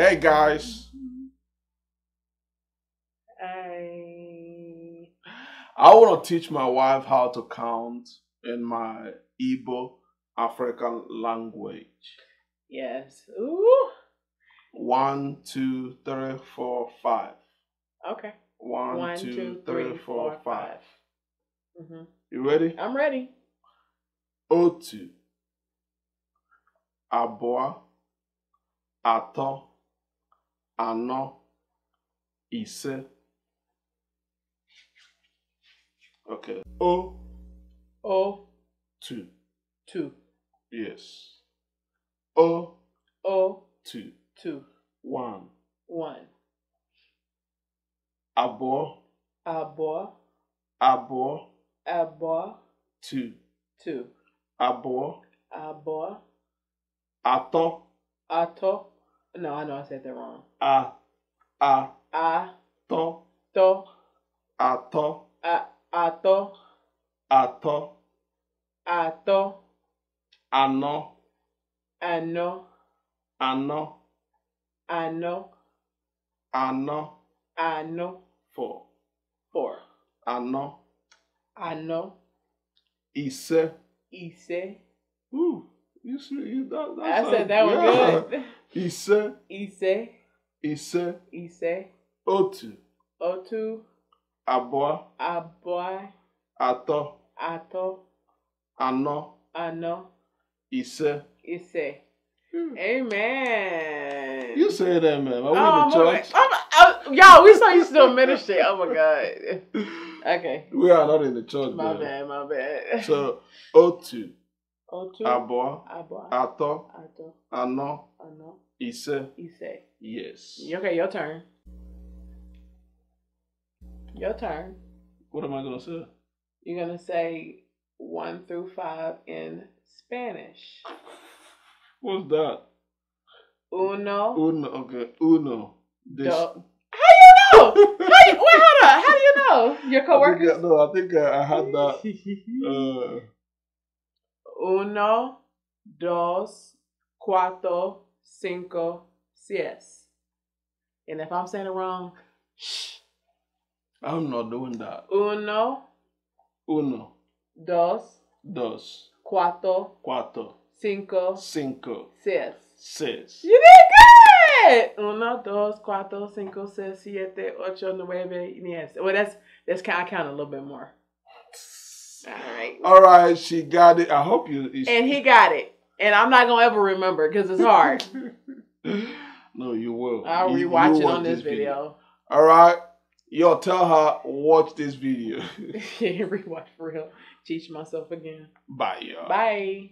Hey guys. I I want to teach my wife how to count in my Igbo African language. Yes. Ooh. One, two, three, four, five. Okay. One, One three four, four, five. five. Mm-hmm. You ready? I'm ready. Otu. Abua. Ato. anọ ise okay o o two two yes o o two two one one abụọ abụọ abụọ abụọ two two abụọ abụọ atọ atọ No, I know I said that wrong. Ah, ah, ah, to, to, ato, a, ato, ato, ato, ano, ano, ano, ano, ano, ano, four, four, ano, ano, ise, ise, ooh. You should. You, that, I said that was yeah. good. Ise. Ise. Ise. Ise. Otu. Otu. Abua. Abua. Ato. Ato. Ano. Ano. Ise. Ise. Hmm. Amen. You say that, man. I went oh, the church. Oh, oh, y'all, we saw you still ministry. Oh my God. Okay. We are not in the church. My man. bad. My bad. So, Otu otu abụọ abụọ atọ atọ anọ anọ ise ise yes okay your turn your turn what am i gonna say you're gonna say one through five in spanish what's that uno uno okay uno this Do- you know how wait hold on how do you know your coworkers I no i think i, I had that uh Uno, dos, cuatro, cinco, seis. And if I'm saying it wrong, shh. I'm not doing that. Uno. Uno. Dos. Dos. Cuatro. Cuatro. Cinco. Cinco. Seis. Seis. You did good! Uno, dos, cuatro, cinco, seis, siete, ocho, nueve, diez. Well, that's, that's, I count a little bit more. All right. All right. She got it. I hope you. and he got it. And I'm not gonna ever remember because it's hard. no, you will. I'll you, rewatch you it on this, video. video. All right. Yo, tell her watch this video. rewatch for real. Teach myself again. Bye, y'all. Bye.